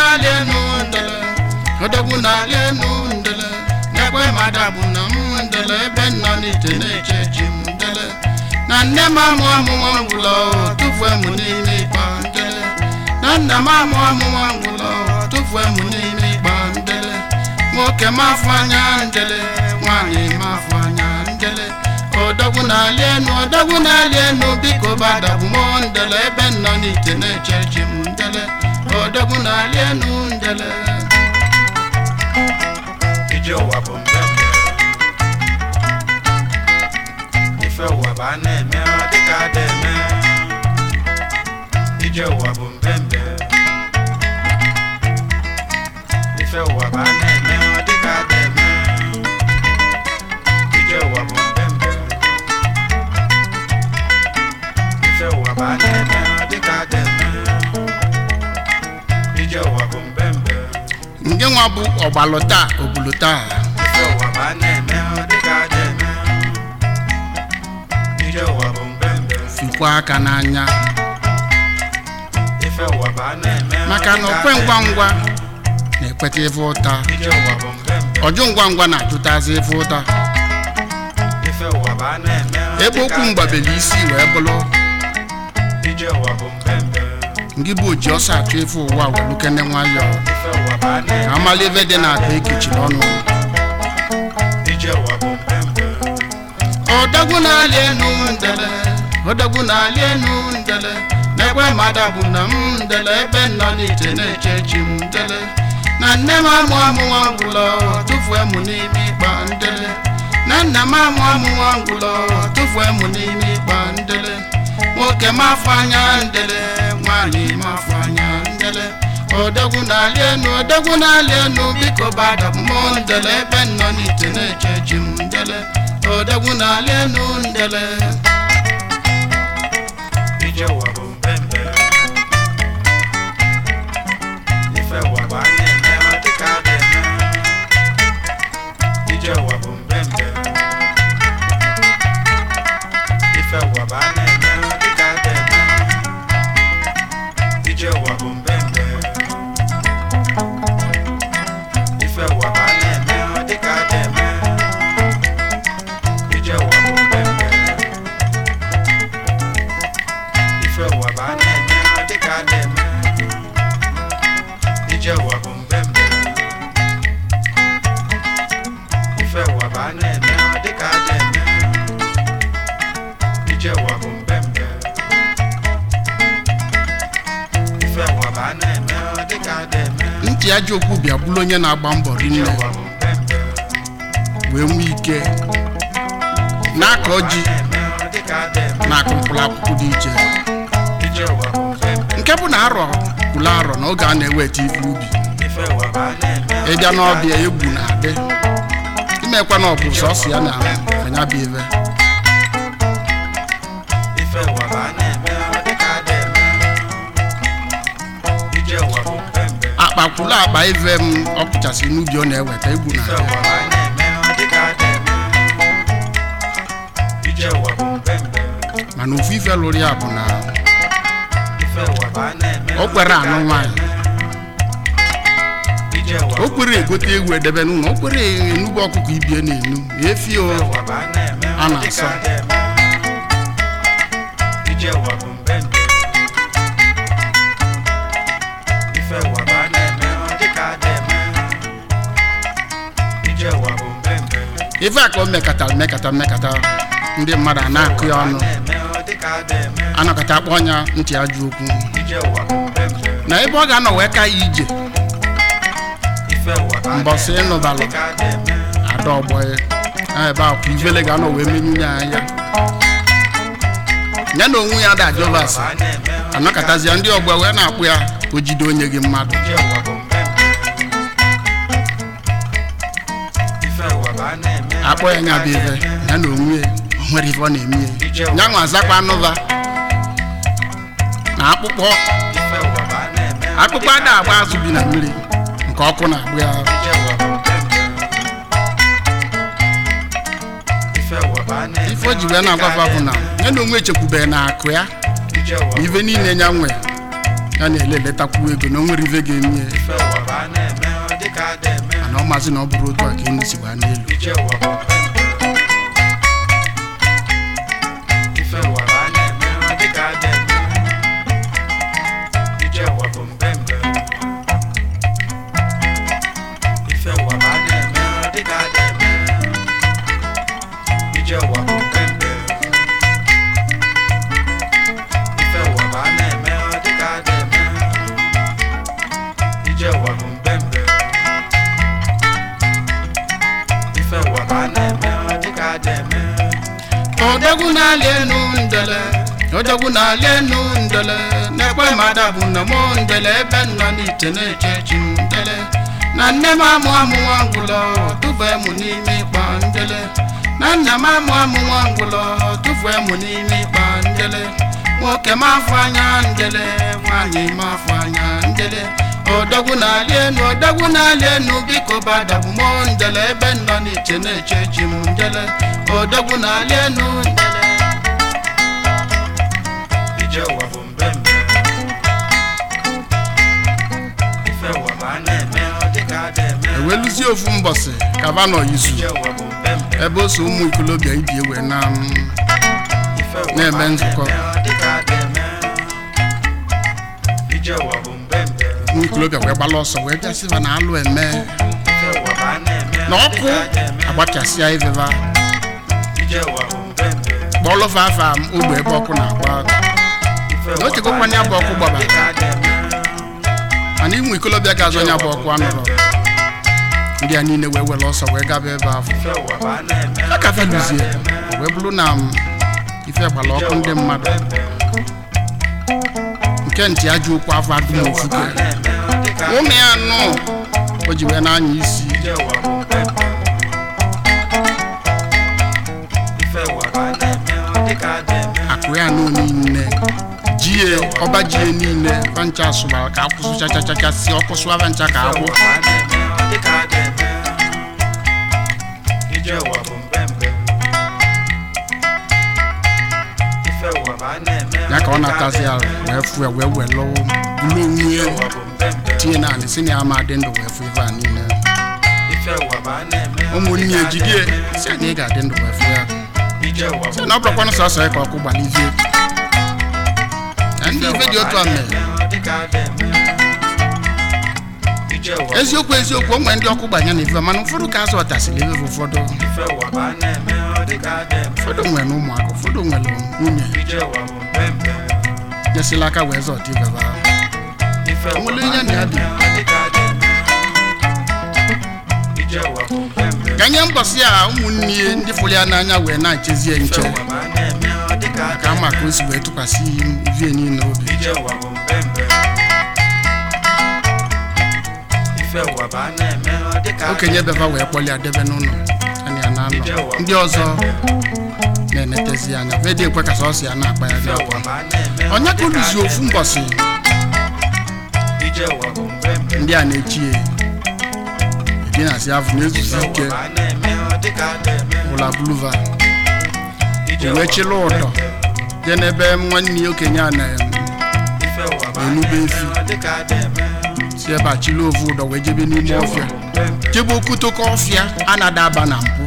n'alị enu odogwu enu ndele n'egbe bụ na ebe nọ n'ite na-eche m na nne m amụ ngwụlọ tụfue n'ime n'ime ịkpa ndele nwoke m afọ anya ndele nwaanyị m anya ndele odogwu na-alị enu njele ije ụwa bụ mbe ife ụwa bụ a na-eme dịka ada eme ije ụwa bụ mbe mbe ife ụwa bụ a na-eme dịka ada eme ije ụwa bụ mbe ife ụwa bụ a na-eme gị nwa bụ ọgbalụ taa obulu taa sikwa aka n'anya maka na okwe ngwa ngwa na-ekweta ife ụta ọjụ ngwa ngwa na-ajụtazi ife ụta ebe okwu mgbabeli isi wee bụrụ ndị bụ oji ọsọ achọ efe ụwa welukene nwayọ ka amala ebe dị n'akpa ekechiri ọnụ ọdagwu na-alị enu ndele ọdagwu na-alị enu ndele n'egbe mmadụ bụ na m ndele ebe nọ n'ite na-eche chi m ndele na nne m amụ amụ ngwụlọ tụfuo m n'ime ịkpa ndele na nna m amụ amụ ngwụlọ tụfuo m n'ime ịkpa ndele nwoke m afọ anya ndele nwanyị mafanya ndele odogwu na-alị enu odogwu na-alị enu biko bada mmụọ ndele ebe nọ n'ite na-eche m ndele odogwu na-alị enu ndele ijewa bụ ntị ajọ okwu bịa bụrụ onye na-agba mbọ rinne wee nwee ike na-akọ ji na akụmkpụrụ akwụkwọ dị iche nke bụ na arọ kwụrụ arọ na oge a na-eweta ife ubi ịbịa n'ọbịa egwu na-adị imekwa na ọbụ bụ ya na anyabịa akpa akpa ive m ọ n'ubi ọ na-eweta egwu na mana ofu ife lụrụ ya bụ na o kwere anụ nwaanyị o kwere egote egwu edebe n'ụlọ o kwere enugbu ọkụkọ ibie na-enu efi a na-asa ife a ka o mekatara mekata mmekata ndị mmadụ a na-akụ ya ọnụ anọkọta akpọ ọnya ntị ajụ okwu na ebe ọ ga-anọ wee ka ya ije mbọsị ịnụbalụ ada ọgbọghị ebe a ivele ga-anọ wee menye anya ya na onwe ya ada jovas anọkọtazi ndị ọgbọ wee na-akpụ ya o jide onye gị mmadụ akpọ ya nya bụ ife ya na onwe nwere ife ọ na-eme ya nwa azakwa anụva na akpụkpọ akpụkpọ ada agba azụ bi na mmiri nke ọkụ na-agbụ ya ife o ji wee na-agwafa bụ na ya na onwe echekwubeghị na akụ ya na ife niile ya nwe ya na-eleletakwuo ego na o nwere ife ga-eme ya ọ maazị na ọ bụrụ otu a ka enyi si gbaa n'elu fada bụ ma m ndele ebe nọ n'ite na-eche chi m na nne m amụ amụ nwangwụlọ tụfee mụ n'ime ịkpa ndele na nna m amụ amụ nwangwụlọ tụfee mụ n'ime ịkpa ndele nwoke m afọ anya ndele nwaanyị m afọ anya ndele na-alị enu odogwu na-alị enu biko badabụ ebe nọ n'iche na-eche chi m ndele na enu ndele eweluzie ofu mbọsị kaba Kavanaugh izu ebe o ụmụ ikolobịa ibi ewe na um, na-eme nzukọ ụmụ ikolobịa wee gbala ọsọ wee bịasịba na alụ eme na ọkụ agbachasịa iveva kpọlụva afa ogbe ebe ọkụ na-agba na ochekwa kwanye abụ ọkụ gbabara mana ịmụ ikolobịa ga-azụ onye abụ ọkụ anụrụ ndị a niile wee were ọsọ wee gaba ebe ahụ aka feluzie wee bụrụ na um, ife gbara ọkụ ndị mmadụ nke ntị ajọ okwu afọ adị n'ofufe ụmụ ya nọ o ji wee na-anya isi akụ ya nọ niile jie ọba jie niile bancha sụbara ka akwụsụ chachachachasị ọkụ sụwa bancha ka akwụ ya ka ọ natazi ala wee fụ ya wee wee lụọ mmewue tinye naanị si na ya ama e adị ndụ wee fụ ife a niile ụmụnne ya si na ga-adị ndụ wee fụ ya si na ọ na sọsọ ya ka ọkụ gbalizie ndị ife dị otu a mere eziokwu eziokwu onwe ndị ọkụ gbanye na ife mana ụfọdụ ka azụ ọtasịrị ebe ụfọdụ ụmụaka ụfọdụ nwere nwunye nyesila aka wee zọta ibeba nwere ihe na ya dị ka nye mbọsị a ụmụnne ndị fụrụ ya n'anya wee na-echezie nche ka ama ka o si wee tụkwasị vie niile obi okenye beba wee kpọlịa debe n'ụlọ ndị ọzọ na-enetezi anya medịekwe ka sọsọ ya na-akpa ya dị akwa onye ka oluzi ofu mbọsị ndị a na-echi ya dinasi avụ na-ezuzi ike ụla buluva ewechila ụdọ dị n'ebe nwanne ya okenye a na-enube efi si ebe a chịla ovu ụdọ wee jebe n'ime ọfịa jebe okutoko ọfịa a na-adaba na mpụ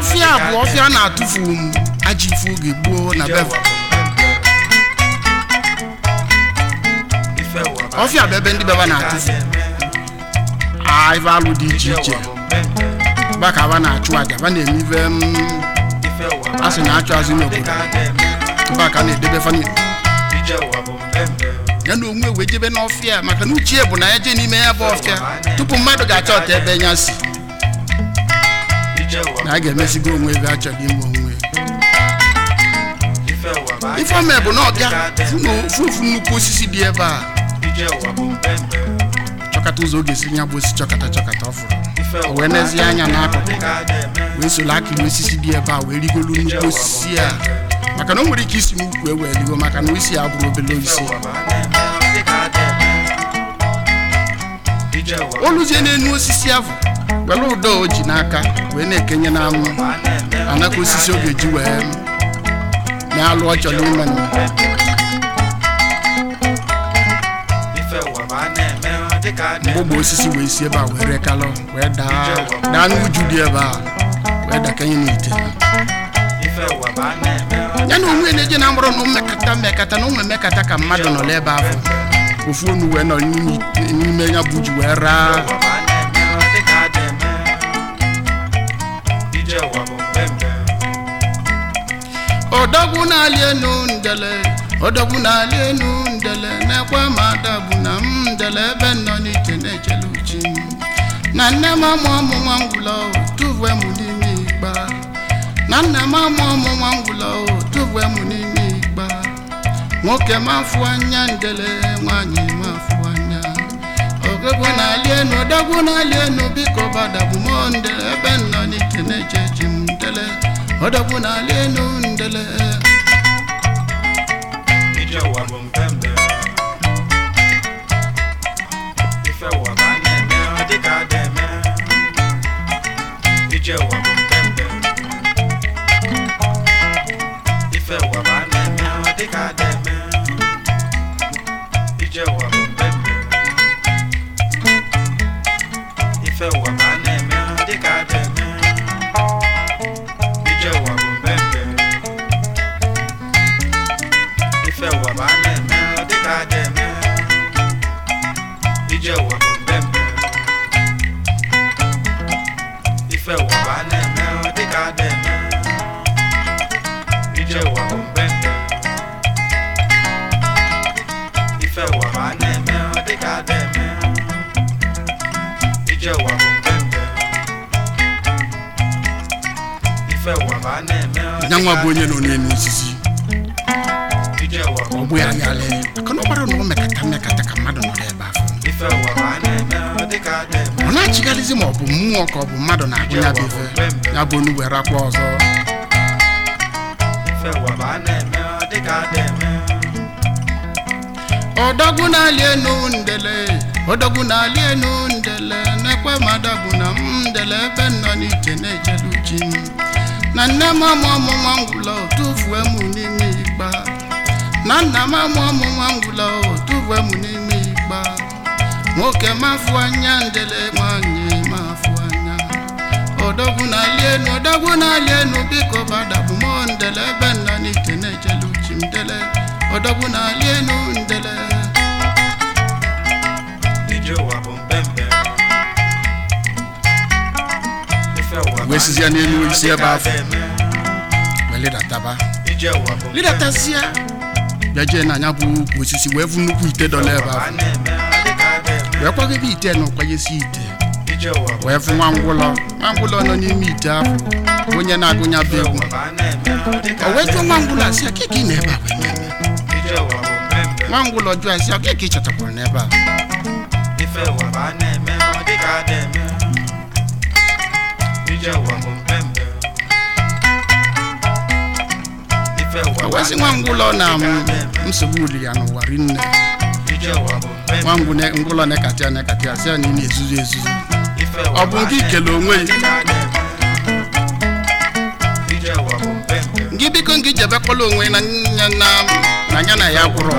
ofe abụọ ọfịa na-atụfu m aji oge gboo na beva ọfịa bụ ebe ndị beba na-atụfu ive alụ dị iche iche baka ba na-achụ aja ba na-eme ive mm, asị na-achụ azụ n'obodo baka na-edebe famili ya na onwe wee jebe n'ọfịa maka na uchie bụ na ya jee n'ime ya bụ ọfịa tupu mmadụ ga-achọ ọta ebe nya si na a ga-emezigo onwe ebe achọghị ime onwe ife bụ na ọbịa fufu nnukwu osisi dị ebe a chọkata ụzọ ọ ga-esi nya bụ osisi chọkata chọkata ọ o wee nezie anya n'akụkụ wee soro akị na osisi dị ebe a wee rigolu nnukwu osisi a maka na o nwere ike isi n'ukwu e wee rigo maka na isi ya bụrụ obele osisi o luzie n'enu osisi ahụ were ụdọ o ji n'aka wee na-ekenye n'anwụ anaka osisi ọ ga-eji wee na-alụ ọ chọrọ ime mgbogbo osisi wee si ebe a wee rekalọ wee daa daa n'uju dị ebe a wee dakenye n'ite ya na onwe na-eje na mkpụrụ na mmekata mmekata na ụmụ mmekata ka mmadụ nọ n'ebe ahụ ofu onu wee nọ n'ime ya bụ ji wee raa ọdọgwu n'ali enu ndele ọdọgwu n'ali enu ndele mekwe ma adabụ na m ndele ebe nọ n'iche na-echele uchi m na nne m amụ ọmụ nwa ngwụlọ tuwe m n'ime igba na nna m amụ ọmụ nwa ngwụlọ tuwe m n'ime igba nwoke m afụ anya ndele nwaanyị m afụ anya ọgụgụ n'ali enu ọdọgwu n'ali enu biko badabụ m ndele ebe nọ n'iche na-eche m ndele ọdọgbu n'ala enu ndele nyanwa bụ onye nọ n'elu osisi ọ bụ ya yalị ka na ọgbara na ọ mekata mekata ka mmadụ nọrọ ebe afọ ọ na-achịgharịzi ma ọ bụ mmụọ ka ọ bụ mmadụ na-agụ ya bụ ife ya bụ onu were akwa ọzọ ọdọgwu na-alị enu ndele ọdọgwu na-alị enu ndele na-ekwe ma adọgwu na m ndele ebe nọ n'iche na-echelu chi na nne m amụ ọmụnwa ngwụla tụfuo m n'ime igba na nna m amụ ọmụnwa ngwụla tụfuo m n'ime igba nwoke mafụ anya ndele nwanyị mafụ anya odogwu na-ali enu odogwu na-ali enu biko gbadabụ m ndele ebe nna n'ike na-ejelu chi ndele odogwu na-ali ndele ije bụ mba wee sizie n'elu si ebe afọ wee lidataba lidatazia bịa jee n'anya bụ ukwu osisi wee vu nnukwu ite dọla ebe afọ wee kwagebe ite na ụkwanyesi ite wee fụ nwa ngwụlọ nwa ngwụlọ nọ n'ime ite ahụ onye na-agụnya bụ egwu o wee jụọ nwa ngwụlọ asị akịka ị na-ebe a nwa ngwụlọ jụọ asị akịka ị chọtakwara n'ebe a O nwa ngwụlọ na nsogbu uli ya n'ụwa rinne nwa ngwụlọ na-ekacha si ya na ị na-ezuzu ezuzu ọ bụ nke ikele onwe gị biko ngị jebekwala onwe na nya na ya gwụrụ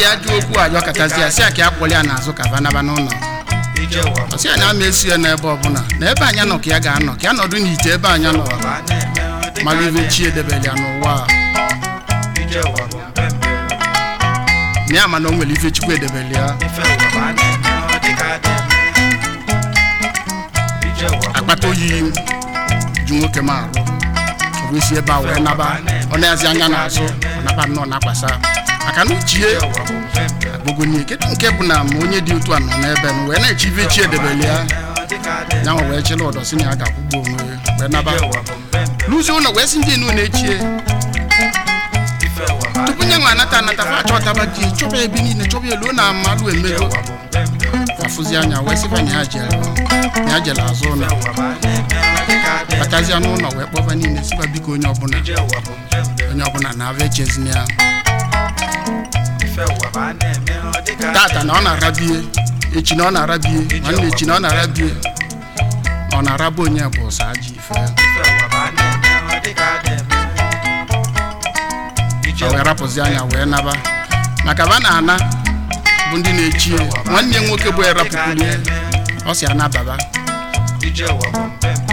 ji ya dị okwu ajọ katazi ya si ya ka ya ya n'azụ ka banaba n'ụlọ ọsị anya na ama esi ya n'ebe ọbụla na ebe anya nọ ka ya ga-anọ ka ya nọdụ n'ite ebe anya nọ mara ibe chi edebere ya n'ụwa na ya mana o nwere ife chukwu edebere ya akpata oyi ju nwoke ma arụ ọ bụ isi ebe a wee naba ọ na-azi anya n'azụ ọ naba nnọọ na-akwasa maka na uchie agbụgonye kedu nke bụ na ma onye dị otu a nọ n'ebe m wee na-echibe chi edebele ya yanwa wee chịla ọdọ na ya ga-akwụgbu onwe wee naba n'ụzọ ụlọ wee si ndị enu na-echie tupu nye nwa anata anata fa achọtaba ji chọba ebe niile chọba elu na amalụ emego afụzi anya wee sịba nya ya jere azụ ụlọ batazia n'ụlọ wee kpọba niile sịba biko onye ọbụla onye ọbụla na-abịa echezina ya tata na ọ na-arabie echi na ọ na-arabie nwanne echi na ọ na-arabie ọ na-araba onye bụ ụsọ ji ife ya wee rapụzi anya wee naba maka ba na-ana bụ ndị na-echi nwanne ya nwoke bụ erapụkwuru ya ọ si anababa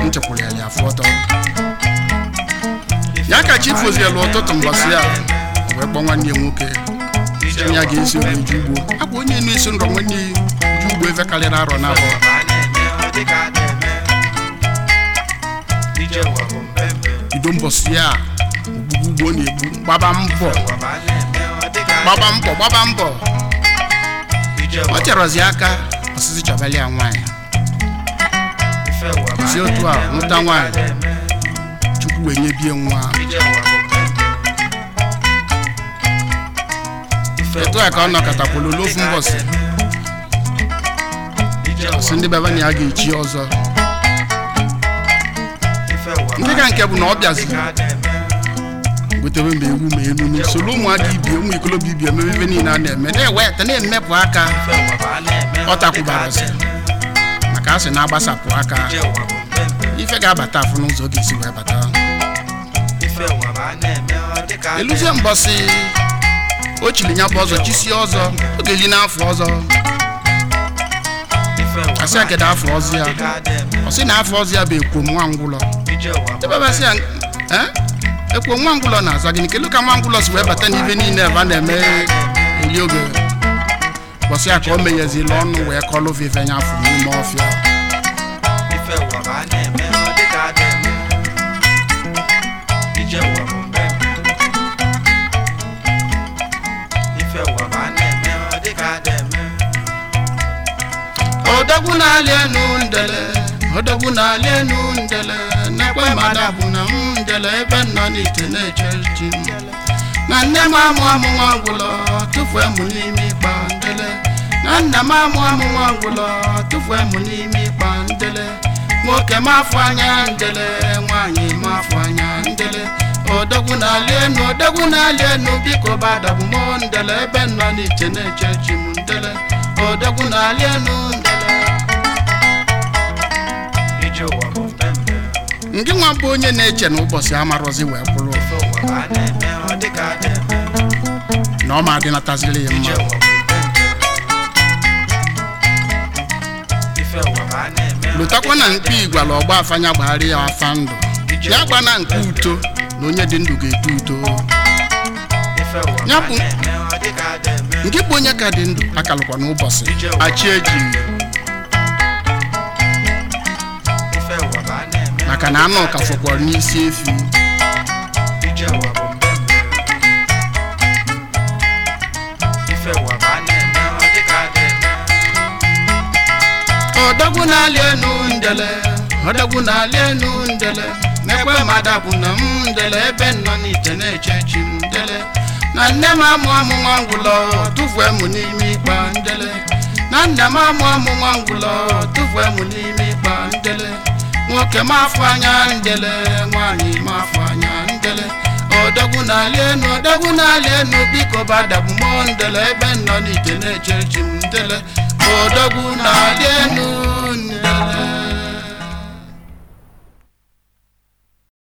nchekwuru ya ya afọ ọtọ ya ka chi fozielu ụtụtụ mgbasị ya wee kpọọ nwanne ya nwoke ya ga-esi wee ju ugbo akwa onye na-eso ngọ nwanne ya ugbo ebe karịrị arọ na abụọ bido mbọsị ya ogbugbu ugbo na-egbu gbaba mbọ gbaba mbọ gbaba mbọ ọ chọrọzi aka ọsịsị chọbali ya si otu a nwụta nwanyị chukwu wee nye bie nwa otu a ka ọ nọkọtakwulu n'ofu mbọsị ọsị ndị baba a ga-echi ọzọ ndị ka nke bụ na ọ bịaziri gotewe mba ewu ma elu na soro ụmụaka ibie ụmụ ikolobịa ibie mebe ebe niile a na-eme na-eweta na-emepụ aka ọ takwubara maka asị na-agbasapụ aka ife ga-abata afụ n'ụzọ ga-esi wee bata eluzie mbọsị o chiri nya bụ ọzọ chisi ọzọ ọ ga-eli n'afọ ọzọ asị akedo afọ ọzọ ya ọ sị na afọ ọzọ ya bụ ekwo nwa ngwụlọ ebebasị ya ekwo nwa ngwụlọ na-aza gịnị kelu ka nwa ngwụlọ si wee bata n'ibe niile ebe a na-eme eli oge bọsị ya ka o meghezila ọnụ wee kọlụ vive nya afọ n'ime ọfịa ọdọgwu na-alị enu ndele ọdọgwu na-alị enu ndele na-ekwe mmadụ bụ na m ndele ebe nọ n'ite na-eche ji na nne m amụ amụ nwa ọgwụlọ tụfuo m n'ime ịkpa ndele na nna m amụ amụ nwa ọgwụlọ tụfuo m n'ime ịkpa ndele nwoke m afọ anya ndele nwaanyị m afọ anya ndele odogwu na-alị enu odogwu na-alị enu biko badabụ m ndele ebe nọ n'iche na-eche chi m ndele odogwu na-alị enu nke nwa bụ onye na-eche na ụbọchị amarozi wee kwụrụ na ọ ma adịnataziri ya mma lụtakwa na mkpi igwala ọgba afanya gbagharị ya afa ndụ ya gba na nke uto na onye dị ndụ ga-eto uto ya bụ nke bụ onye ka dị ndụ akalụkwa n'ụbọchị achị eji maka na ama ọka fọkwara n'isi efi ọdọgwu na ọdọgwu na-alị n'ekwe na m ndele ebe n'ite na-eche na nne m amụ amụ nwa ngwụlọ tụfuo n'ime ikpa ndele nwoke mafụ anya ndele nwanyị mafụ anya ndele odogwu n'ala enu odogwu n'ala enu biko bada mụ ndele ebe nọ n'ike na-eche chi m ndele odogwu n'ala enu